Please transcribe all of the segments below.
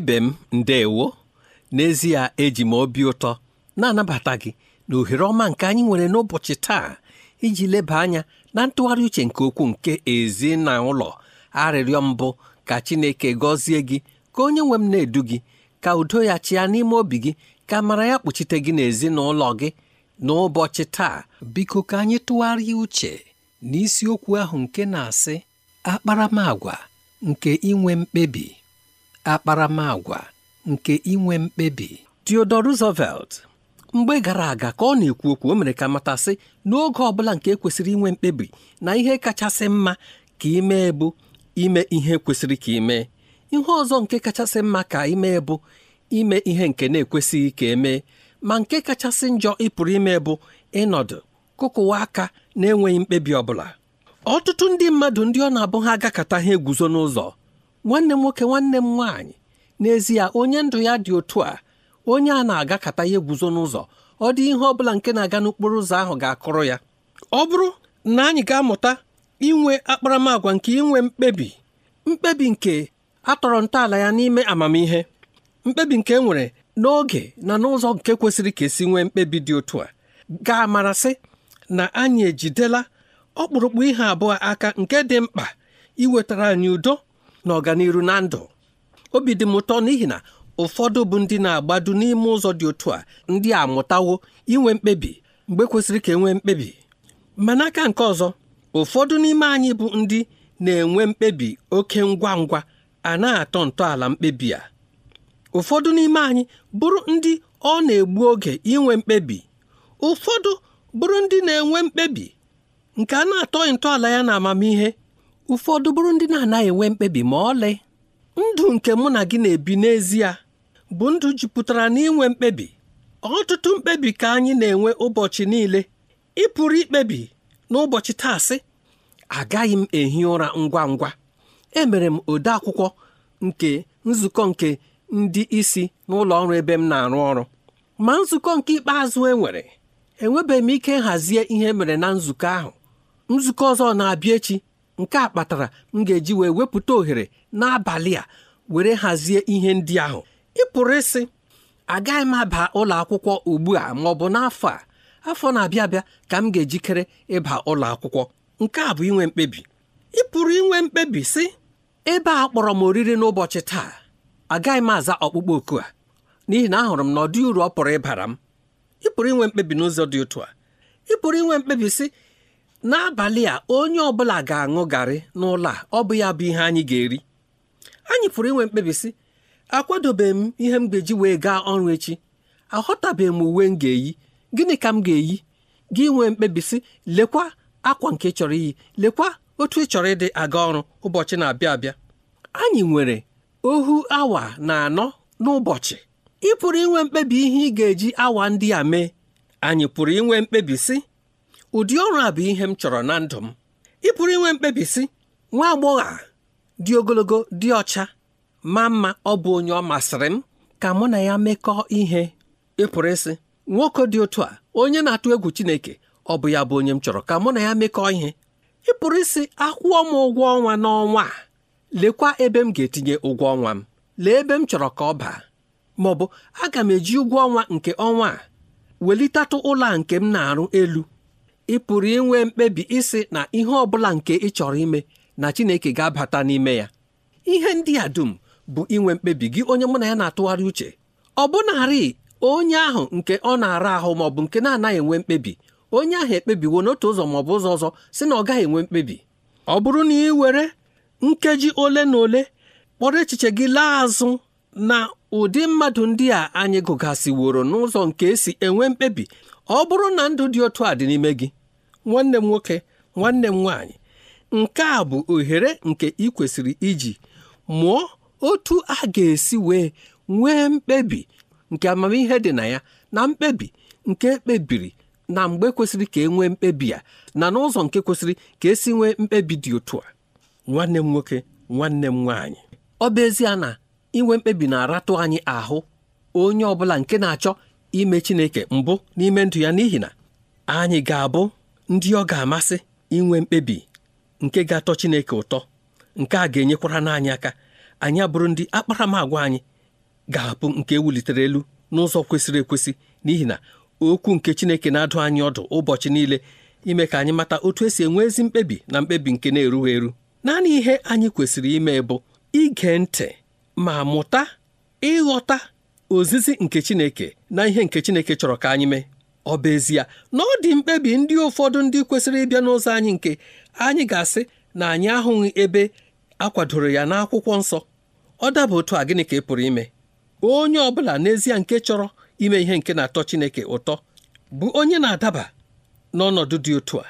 ibe m ndeewo n'ezie eji m obi ụtọ na-anabata gị na ohere ọma nke anyị nwere n'ụbọchị taa iji leba anya na ntụgharị uche nke okwu nke ezi na ụlọ arịrịọ mbụ ka Chineke gọzie gị ka onye nwe m na-edu gị ka udo ya chịa n'ime obi gị ka mara ya kpuchite gị n'ezinụlọ gị n'ụbọchị taa biko ka anyị tụgharịa uche n'isiokwu ahụ nke na-asị akparamagwa nke inwe mkpebi akparamagwa nke inwe mkpebi Theodore Roosevelt mgbe gara aga ka ọ na-ekwu okwu o mere ka matasị n'oge ọ bụla nke e kwesịrị inwe mkpebi na ihe kachasị mma ka ime bụ ime ihe kwesịrị ka ime ihe ọzọ nke kachasị mma ka ime bụ ime ihe nke na-ekwesịghị ka emee ma nke kachasị njọ ịpụrụ ime bụ ịnọdụ kụkụwa aka na-enweghị mkpebi ọbụla ọtụtụ ndị mmadụ ndị ọ na-abụ ha agakọta ha eguzo n'ụzọ nwanne m nwoke nwanne m nwaanyị n'ezie onye ndụ ya dị otu a onye a na-agakata ya eguzo n'ụzọ ọ dị ihe ọ bụla nke na-aga n'okporo ụzọ ahụ ga-akụrụ ya ọ bụrụ na anyị ga-amụta inwe akparamagwa nke inwe mkpebi mkpebi nke atọrọ ntọala ya n'ime amamihe mkpebi nke e nwere n'oge na n'ụzọ nke kwesịrị ka esi nwee mkpebi dị otu a ga-amarasị na anyị ejidela ọkpụrụkpụ ihe abụọ aka nke dị mkpa iwetara anyị udo na ọganiru na ndụ obi dị m ụtọ n'ihi na ụfọdụ bụ ndị na-agbado n'ime ụzọ dị otu a ndị a mụtawo inwe mkpebi mgbe kwesịrị ka enwee mkpebi ma n'aka nke ọzọ ụfọdụ n'ime anyị bụ ndị na-enwe mkpebi oke ngwa ngwa a na-atọ ntọala mkpebi a ụfọdụ n'ime anyị bụrụ ndị ọ na-egbu oge inwe mkpebi ụfọdụ bụrụ ndị na-enwe mkpebi nke a na-atọghị ntọala ya na amamihe ụfọdụ bụrụ ndị na-anaghị enwe mkpebi ma ọlị ndụ nke mụ na gị na-ebi n'ezie bụ ndụ jupụtara n'inwe mkpebi ọtụtụ mkpebi ka anyị na-enwe ụbọchị niile ị pụrụ ikpebi n'ụbọchị taasị agaghị m ehi ụra ngwa ngwa emere m ode akwụkwọ nke nzukọ nke ndị isi n'ụlọ ọrụ ebe m na-arụ ọrụ ma nzukọ nke ikpeazụ enwere enwebeghị m ike nhazie ihe e mere na nzukọ ahụ nzukọ ọzọ na-abịa echi nke a kpatara m ga-eji wee wepụta ohere n'abalị a were hazie ihe ndị ahụ ị pụrụ ịsị agaghị m aba ụlọ akwụkwọ ugbu a ma ọ bụ n'afọ a afọ na-abịa abịa ka m ga-ejikere ịba ụlọ akwụkwọ nke a bụ inwe mkpebi ị pụrụ inwe mkpebi sị ebe a kpọrọ m oriri n'ụbọchị taa agaghị m aza ọkpụkpọ oku a n'ihi na ahụrụ m na ọ dị uru ọ pụrụ ịbara m ị pụrụ inwe mkpebi n'ụzọ dị otu a ị pụrụ inwe mkpebi sị n'abalị a onye ọbụla ga-aṅụ garị n'ụlọ a ọ bụ ya bụ ihe anyị ga-eri anyị pụrụ inwe mkpebi sị akwadobeghị m ihe m ga-eji wee gaa ọrụ echi aghọtabeghị m uwe m ga-eyi gịnị ka m ga-eyi gị nwee mkpebi sị lekwa akwa nke chọrọ iyi lekwa otu ị chọrọ ịdị aga ọrụ ụbọchị na-abịa abịa anyị nwere ohu awa na anọ n'ụbọchị ị pụrụ inwe mkpebi ihe ị ga-eji awa ndị a mee anyị pụrụ inwe mkpebi si ụdị ọrụ a bụ ihe m chọrọ na ndụ m ị pụrụ inwe mkpebi sị nwa agbọghọ a dị ogologo dị ọcha ma mma ọ bụ onye ọ masịrị m ka mụ na ya mekọọ ihe ịpụrụ isi ịsị nwoke dị otu a onye na-atụ egwu Chineke ọ bụ ya bụ onye m chọrọ ka mụ na ya mekọọ ihe ịpụrụ isi ịsị akwụọ m ụgwọ ọnwa n'ọnwa a lekwa ebe m ga-etinye ụgwọ ọnwa m lee ebe m chọrọ ka ọ baa ma ọ bụ aga m eji ụgwọ ọnwa nke ọnwa a welitatụ ụlọ a nke m na-arụ elu ị pụrụ inwe mkpebi isi na ihe ọ bụla nke ị chọrọ ime na Chineke ga-abata n'ime ya ihe ndị a dum bụ inwe mkpebi gị onye mụ na ya na-atụgharị uche ọ bụnarị onye ahụ nke ọ na-ara ahụ ma ọ bụ nke na-anaghị enwe mkpebi onye ahụ ekpebiwo n'otu ụzọ ma ọ bụ ụzọ ọzọ si na ọ gaghị enwe mkpebi ọ bụrụ na ị were nkeji ole na ole kpọrọ echiche gị laa azụ na ụdị mmadụ ndị a anyị gụgasịworo n'ụzọ nke esi enwe mkpebi ọ bụrụ na ndụ dị otu a dị n'ime gị nwanne m nwoke nwanne m nwaanyị nke a bụ ohere nke ị kwesịrị iji mụọ otu a ga-esi wee nwee mkpebi nke amamihe dị na ya na mkpebi nke ekpebiri na mgbe kwesịrị ka e nwee mkpebi ya na n'ụzọ nke kwesịrị ka esi nwee mkpebi dị otu a nwanne m nwoke nwanne m nwaanyị ọ bụ ezie na inwe mkpebi na-aratụ anyị ahụ onye ọ bụla nke na-achọ ime Chineke mbụ n'ime ndụ ya n'ihi na anyị ga-abụ ndị ọ ga-amasị inwe mkpebi nke ga-atọ Chineke ụtọ nke a ga-enyekwara n'anyị aka anyị abụrụ ndị agwa anyị ga-apụ nke ewulitere elu n'ụzọ kwesịrị ekwesị n'ihi na okwu nke Chineke na-adụ anyị ọdụ ụbọchị niile ime ka anyị mata otu esi enwe ezi mkpebi na mkpebi nke na-erughị eru naanị ihe anyị kwesịrị ime bụ ige ntị ma mụta ịghọta ozizi nke Chineke na ihe nke Chineke chọrọ ka anyị mee ọ bụ ezie na ọ dị mkpebi ndị ụfọdụ ndị kwesịrị ịbịa n'ụzọ anyị nke anyị ga-asị na anyị ahụghị ebe a kwadoro ya n'akwụkwọ nsọ ọ daba otu a gịnị ka ị pụrụ ime onye ọ bụla n'ezie nke chọrọ ime ihe nke na-atọ Chineke ụtọ bụ onye na-adaba n'ọnọdụ dị otu a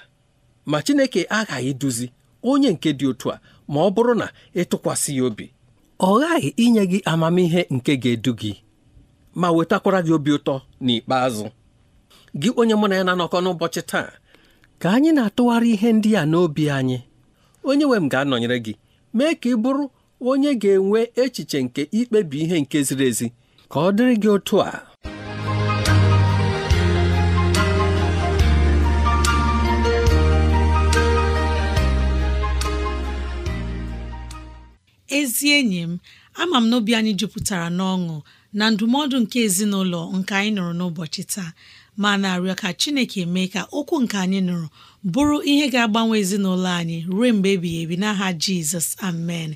ma Chineke aghaghị duzi onye nke dị otu a ma ọ bụrụ na ịtụkwasị ya obi ọ ghaghị inye gị amamihe nke ga-edu gị ma wetakwara gị obi ụtọ n'ikpeazụ gị onye mụ na ya na-anọkọ n'ụbọchị taa ka anyị na-atụgharị ihe ndị a n'obi anyị onye nwe m ga-anọnyere gị mee ka ị bụrụ onye ga-enwe echiche nke ikpebi ihe nke ziri ezi ka ọ dịrị gị otu a ezi enyi m ama m n'obi anyị jupụtara n'ọṅụ na ndụmọdụ nke ezinụlọ nke anyị nụrụ n'ụbọchị taa ma na-arịọ ka Chineke mee ka okwu nke anyị nụrụ bụrụ ihe ga-agbanwe ezinụlọ anyị ruo mgbe ebighị ebi n'aha Jizọs amen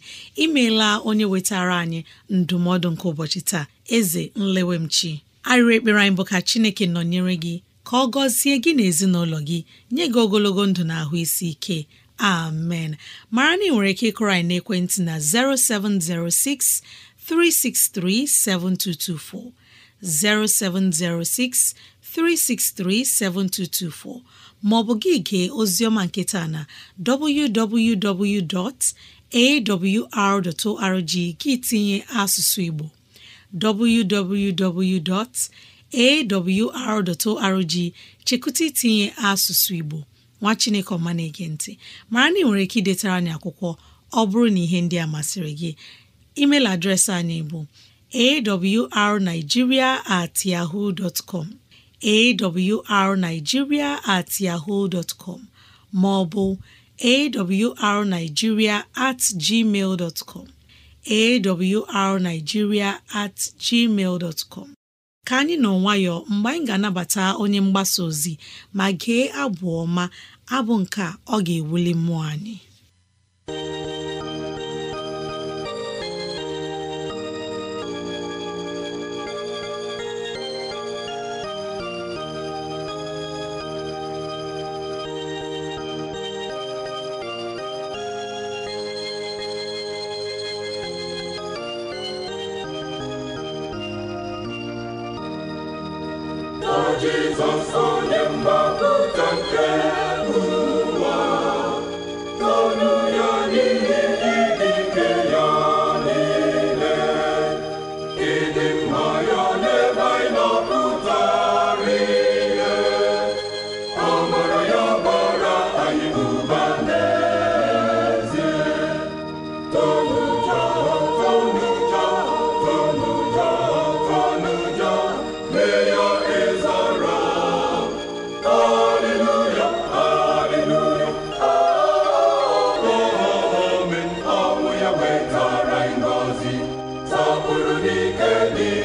imeela onye wetara anyị ndụmọdụ nke ụbọchị taa eze nlewemchi arịrị ekpere anyị bụ ka Chineke nọnyere gị ka ọ gọzie gị na ezinụlọ gị nye gị ogologo ndụ na ahụ isi ike amen mara na ị nwere ike ịkụrọ anyị n'ekwentị na 0706 363 7224 0706 363 3637224 maọbụ gị gee oziọma nketa na www.awr.org gị tinye asụsụ Igbo www.awr.org chekụta itinye asụsụ Igbo nwa Chineke ọma na-ege ntị mara na ị nwere ike idetara anyị akwụkwọ ọ bụrụ na ihe ndị a masịrị gị email adreesị anyị bụ awrnigeria at yahoo dot com awrnigeria at yahoo dot com ma ọ bụ awrnigeria at gmail dot com awrnigeria at gmail dot ka anyị nọ nwayọọ mgbe anyị ga-anabata onye mgbasa ozi ma gee abụ ọma abụ nke ọ ga-ewuli mmụọ anyị gbapụrụ n'ike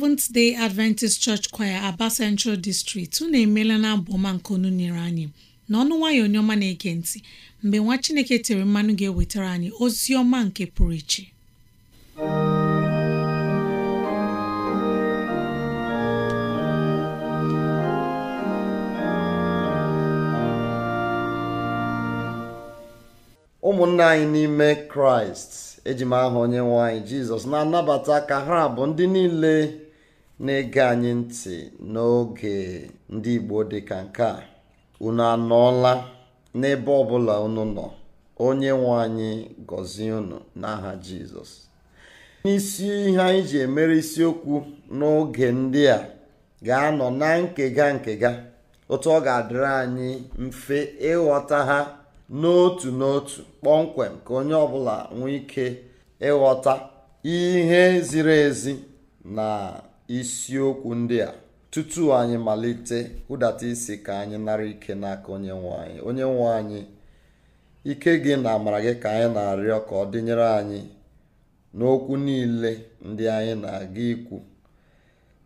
Seventh Day Adventist Church Choir Aba Central District unu emeela na abụma nke onu nyere anyị na ọnụ nwayọ onye na-ege ntị mgbe nwa Chineke tere mmanụ ga-ewetara anyị ozi ọma nke pụrụ iche ụmụnna anyị n'ime kraịst eji m onye nwanyị jizọs na-anabata ka ha bụ ndị niile na anyị ntị n'oge ndị Igbo dịka nke a unu anọọla n'ebe ọbụla unu nọ onye nwe anyị gọzie unu n'aha Jizọs n'isi ihe anyị ji emere isiokwu n'oge ndị a ga-anọ na nkega nkega otu ọ ga-adịrị anyị mfe ịghọta ha n'otu n'otu kpọmkwem ka onye ọbụla nwee ike ịghọta ihe ziri ezi na isiokwu ndị a tutu anyị malite hụdata isi ka anyị nara ike n'aka onye nwe onye nwe anyị ike gị na amara gị ka anyị na-arịọ ka ọ dịnyere anyị n'okwu niile ndị anyị na-aga ikwu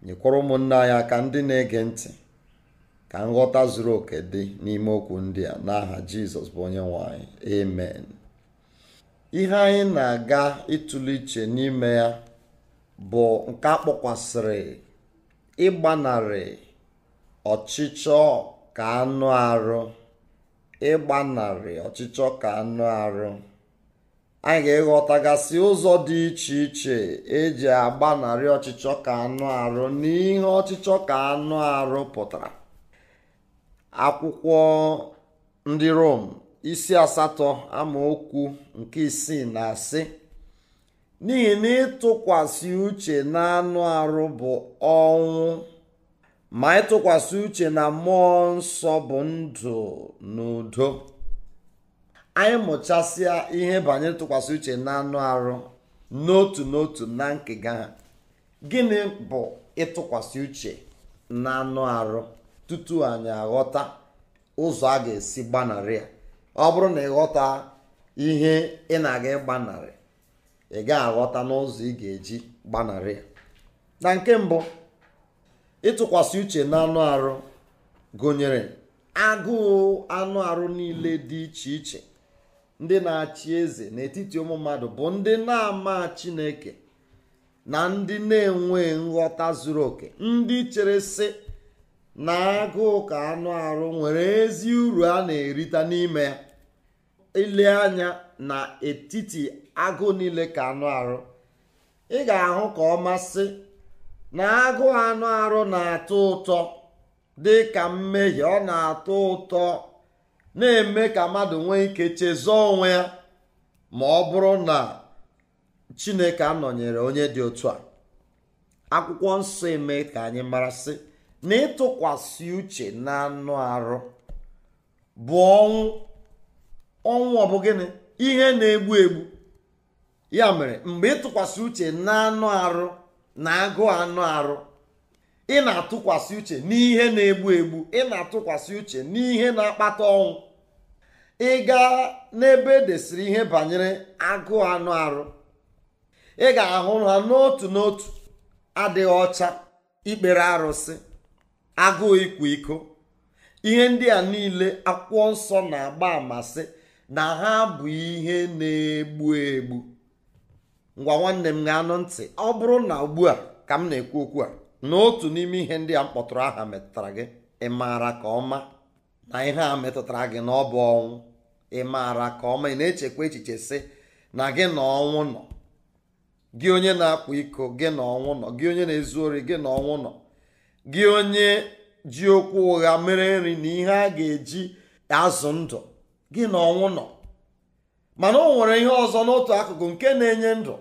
nyekwara ụmụnne anyị aka ndị na-ege ntị ka nghọta zuru oke dị n'ime okwu ndị a n'aha jizọs bụ onye nwe anyị ihe anyị na-aga ịtụle iche n'ime ya bụ nke a kpọkwasịrị ịgbanarị ọchịchọ ka anụ arụ ịgbanarị ọchịchọ ka anụ arụ anyị ga-eghọtagasị ụzọ dị iche iche eji agbanarị ọchịchọ ka anụ arụ n'ihe ọchịchọ ka anụ arụ pụtara akwụkwọ ndị Rom isi asatọ amaokwu nke isii na asị n'ihi na ịtụkwasị uche na anụ arụ bụ ọnwụ ma ịtụkwasị uche na mmụọ nsọ bụ ndụ na udo anyị mụchasịa ihe banyere ntụkwasị uche na anụ arụ n'otu n'otu na nkega ha gịnị bụ ịtụkwasị uche na anụ arụ tutu anyị aghọta ụzọ a ga-esi gbanarị ya ọ bụrụ na ịghọta ihe ị na-aga ịgbanarị ị ga-aghọta n'ụzọ ị ga-eji gbanarị na nke mbụ ịtụkwasị uche na anụ arụ gụnyere agụụ anụ arụ niile dị iche iche ndị na-achị eze n'etiti ụmụ mmadụ bụ ndị na-ama Chineke na ndị na-enwe nghọta zuru oke ndị chere sị na agụụ ka anụ arụ nwere ezi uru a na-erita n'ime ya ile anya na agụụ niile ka anụ arụ ị ga-ahụ ka ọ masị na agụ anụ arụ na-atọ ụtọ dị ka mmehie ọ na-atọ ụtọ na-eme ka mmadụ nwee ike chezọọ onwe ya ma ọ bụrụ na chineke anọnyere onye dị otu a akwụkwọ nsọ eme ka anyị mara sị na ịtụkwasị uche na anụ arụ bụ ọnwụ ọnwụ ọ bụ gịnị ihe na-egbu egbu ya mere mgbe ịtụkwasị uche na anụ arụ na agụụ anụ arụ ị na-atụkwasị uche n'ihe na-egbu egbu ị na-atụkwasị uche n'ihe na-akpata ọnwụ ị gaa n'ebe e desịrị ihe banyere agụụ anụ arụ ị ga-ahụ ha n'otu n'otu adịghị ọcha ikpere arụsị agụụ ịkwa iko ihe ndị a niile akwụkwọ nsọ na-agba amasị na ha bụ ihe na-egbu egbu ngwa nwanne m ga-anụ ntị ọ bụrụ na ugbu a ka m na-ekwu okwu a na otu n'ime ihe ndị a m kpọtụrụ aha metụtara gị ị maara ka ọma na ihe a metụtara gị na ọ bụ ọnwụ ị maara ka ọma ị na-echekwa echiche sị na gị na ọnwụ nọ gị onye na-akpụ iko gị na ọnwụ nọ gị onye na-ezu ori gị na ọnwụ nọ gị onye ji okwu ụgha mere nri na ihe a ga-eji azụ ndụ gị na ọnwụ nọ mana o nwere ihe ọzọ n'otu akụkụ nke na-enye ndụ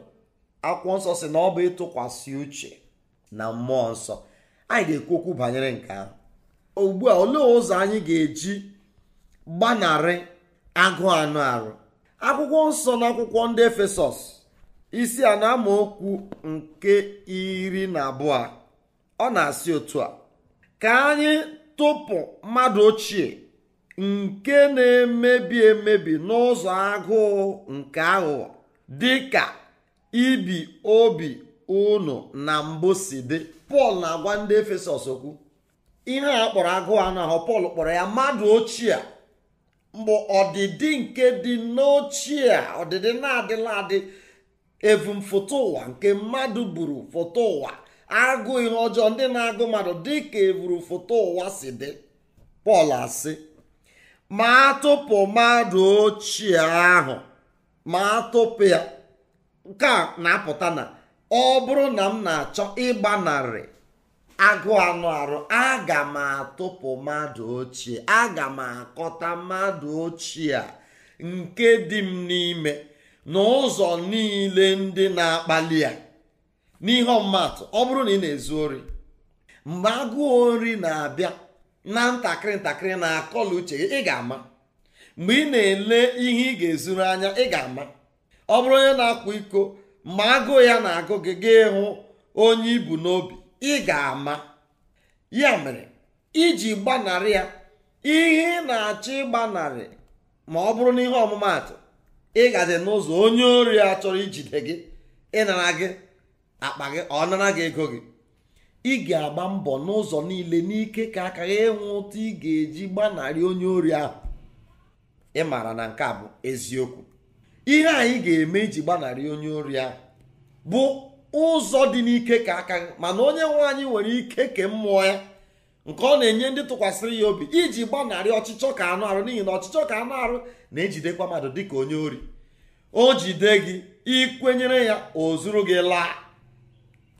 akwụkwọ nsọ si na ọ bụ ịtụkwasị uche na mmụọ nsọ anyị ga-ekwu okwu banyere nke ahụ ugbu a olee ụzọ anyị ga-eji gbanarị agụụ anụ arụ akwụkwọ nsọ na akwụkwọ ndị efesọs isi a na amaokwu nke iri na abụọ ọ na-asị otu a ka anyị tụpụ mmadụ ochie nke na-emebi emebi n'ụzọ agụụ nke aghụghọ dịka ibi obi unu na mbụ si dị pọl na-agwa ndị efesọs okwu ihe a kpọrọ agụụ anụ ahụ pọl kpọrọ ya mmadụ ochie mbụ ọdịdị nke dị n'ochie ọdịdị na-adịla adị evumfoto ụwa nke mmadụ buru foto ụwa agụ ihe ọjọọ ndị na-agụ mmadụ dị ka foto ụwa si dị pọl asị ma atụpụ mmadụ ochie ahụ ma atụpụ ya nke a na-apụta na ọ bụrụ na m na-achọ ịgbanarị agụụ anụ arụ aga m atụpụ mmadụ ochie aga m akọta mmadụ ochie a nke dị m n'ime n'ụzọ niile ndị na-akpali ya n'ihe ọmụmatụ ọ bụrụ na ị na-ezu ori mgbe agụụ ori na-abịa na ntakịrị ntakịrị na-akọla uche ị ga-ama mgbe ị na-ele ihe ị ga-ezuru anya ị ga-ama ọ bụrụ onye na-akwa iko ma agụụ ya na-agụ gị ga ịhụ onye ibu n'obi ị ga-ama ya mere iji gbanarị ya ihe ị na-achọ ịgbanarị ma ọ bụrụ na ihe ọmụmaatụ ị gazi n'ụzọ onye ori a chọrọ ijide gị ịnara gị akpa gị ọ nara gị ego gị ị ga-agba mbọ n'ụzọ niile n'ike ka aka gị ịnwụ ụtụ ị ga-eji gbanarị onye ori ahụ ị maara na nke a bụ eziokwu ihe anyị ga-eme iji gbanarị onye ori a bụ ụzọ dị n'ike ka aka mana onye nwe anyị nwere ike ke mmụọ ya nke ọ na-enye ndị tụkwasịrị ya obi iji gbanarị ọchịchọ ka anụ arụ n'ihi na ọchịchọ ka anụ arụ na-ejidekwa mmadụ dịka onye ori o jide gị ikwenyere ya o zuru gị laa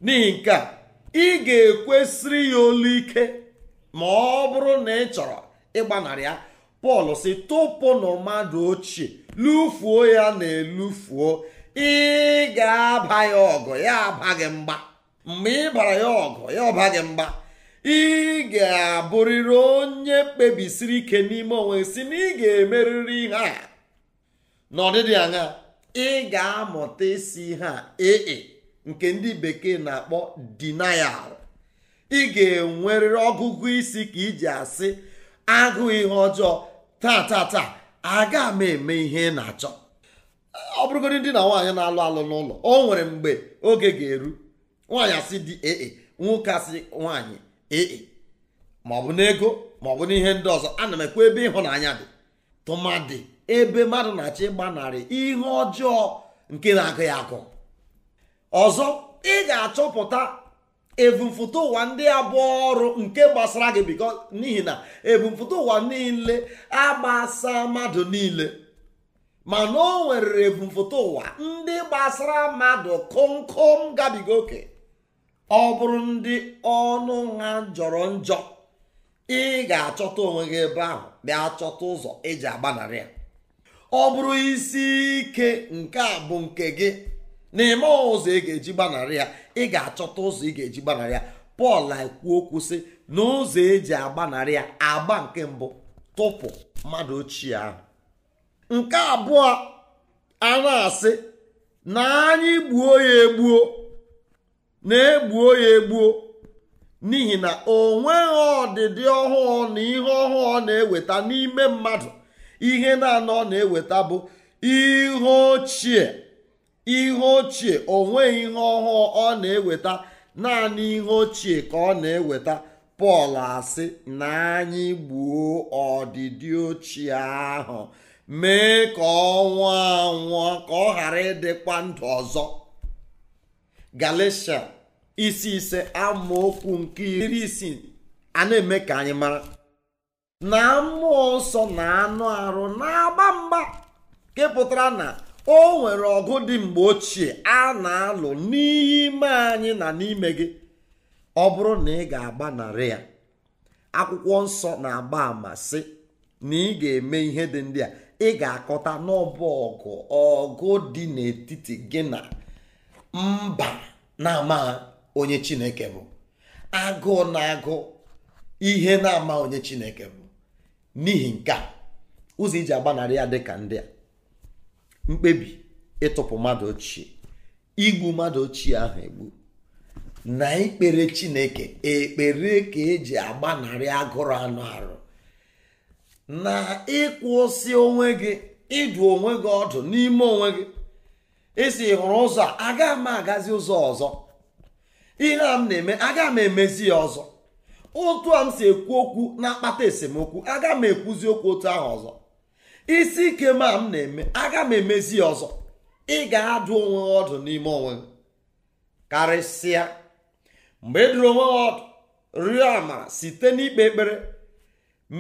n'ihi nke a ị ga-ekwesịrị ya olu ike ma ọ bụrụ na ị chọrọ ịgbanarị ya Pọl si tụpụnụ mmadụ ochie lufuo ya na-elufuo ị ga-aba ya ọgụ ya aba gị mgba mgbe ị bara ya ọgụ ya ọba gị mgba ị ga-abụrịrị onye kpebisiri ike n'ime onwe si na ị ga-emerịrị ihe a n'ọdịdị anya ị ga-amụta isi ihe a ee nke ndị bekee na-akpọ denial ị ga-enwerịrị ọgụgụ isi ka iji asị agụ ihe ọjọọ taa taa taa aga m eme ihe ị na-achọ ọ bụrụgodị ndị na nwaanyị na-alụ alụ n'ụlọ o nwere mgbe oge ga-eru nwaanyị asị dị ee nwoke asị nwaanyị ee ma ọ bụ n'ego ma ọ bụ n'ihe ndị ọzọ ana m ekwe ebe ịhụnanya dị tụmadị ebe mmadụ na-achọ ịgbanarị ihe ọjọọ nke na-agụ ya agụ ọzọ ị ga-achọpụta ebumfụta ụwa ndị abụọ ọrụ nke gbasara gị biko n'ihi na ebumfụta ụwa niile agbasa mmadụ niile mana o nwere ebumfụta ụwa ndị gbasara mmadụ kụmkụm gabiga oke ọ bụrụ ndị ọnụ ha jọrọ njọ ị ga-achọta onwe gị ebe ahụ bịa chọta ụzọ eji agbanarị ya ọ bụrụ isi ike nke a bụ nke gị n'ime ụzọ ị ga-eji gbanarị ya ị ga-achọta ụzọ ị ga-eji gbanarị ya pọl ekwu okwu sị na ụzọ eji agbanarị ya agba nke mbụ tụpụ mmadụ ochie ahụ nke abụọ a na-asị na anyị gbuo ya egbuo na-egbuo ya egbuo n'ihi na o nweghị ọdịdị ọhụụ na ihe ọhụụ na-eweta n'ime mmadụ ihe na-anọ na-eweta bụ ihe ochie ihe ochie o nweghị ihe ọhụụ ọ na-eweta naanị ihe ochie ka ọ na-eweta pọl asị na anyị gbuo ọdịdị ochie ahụ mee ka ọ nwụọ anwụọ ka ọ ghara ịdịkwa ndụ ọzọ galatia isi ise amaokwu nke iri isii a na-eme ka anyị mara na mmụọ nsọ na anụ arụ na-agba mgba nke na o nwere ọgụ dị mgbe ochie a na-alụ n'ime anyị na n'ime gị ọ bụrụ na ị ga-agbanarị ya akwụkwọ nsọ na-agba ama sị na ị ga-eme ihe dị ndị a ị ga-akọta n'ọbụ ọgụ ọgụ dị n'etiti gị na mba na-amaghị onye chineke bụ agụụ na-agụ ihe na-ama onye chineke bụ n'ihi nke a ụzọ iji agbanarị ya dị ka ndị a mkpebi ịtụpụ mmadụ ochie igbu mmadụ ochie ahụ egbu na ikpere chineke ekpere ka eji agbanarị agụrụ anụ arụ na ịkwụsị onwe gị ịdụ onwe gị ọdụ n'ime onwe gị esi hụrụ ụzọ a aga m agazi ụzọ ọzọ ihe a m na-eme aga m emezi ya ọzọ otu a m si ekwu okwu na-akpata esemokwu aga m ekwuzi okwu otu ahụ ọzọ isi ike ma m na-eme aga m emezi ọzọ ị ga-adụ onwe ọdụ n'ime onwe m karịsịa mgbe ị e dụrụ onwe ọdụ rịọ amara site n'ikpe ekpere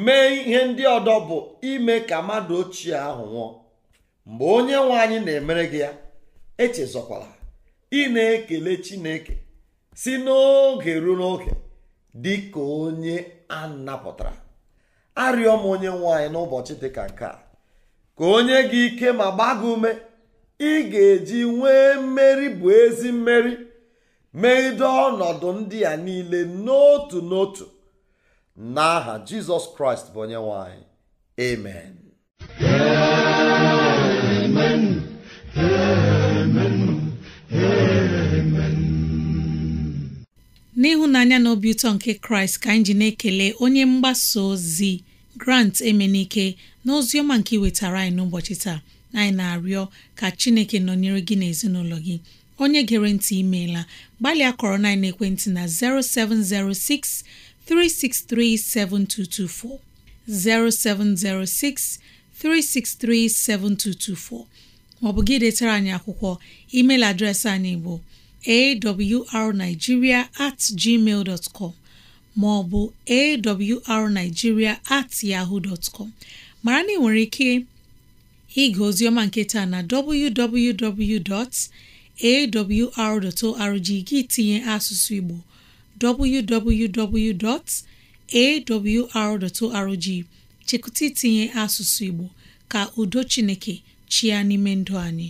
mee ihe ndị ọdọ bụ ime ka mmadụ ochie ahụ nwụọ mgbe onye nwanyị na-emere gị ya echezọkwala ị na-ekele chineke si n'oge ruo n'oge dị ka onye a napụtara arịọ m onye nwe n'ụbọchị dị ka nke a ka onye gị ike ma gbaa ume ị ga-eji nwee mmeri bụ ezi mmeri megide ọnọdụ ndị a niile n'otu n'otu n'aha jizọs kraịst bụ onye nwanyị amen amen amen n'ịhụnanya na obi ụtọ nke kraịst ka anyị ji na-ekele onye mgbasa ozi grant emenike n'ozi ọma nke iwetara anyị n'ụbọchị taa anyị na-arịọ ka Chineke nọnyere gị na ezinụlọ gị onye gere ntị imeela gbalịa kọrọ na ekwentị na 0706 363 7224 0706 363 7224 maọbụ gị detara anyị akwụkwọ email adreesị anyị bụ awrnigeria at gmail dot com maọbụ awrnigeria at yahoo dot com mara na ị nwere ike ịga ozioma nke taa na www.awr.org gị tinye asụsụ Igbo www.awr.org chekụta itinye asụsụ Igbo ka udo Chineke chia n'ime ndụ anyị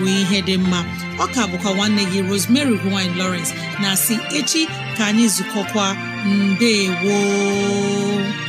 bụ ihe dị mma ka bụkwa nwanne gị Rosemary gine Lawrence na si echi ka anyị zukọkwa mbe woo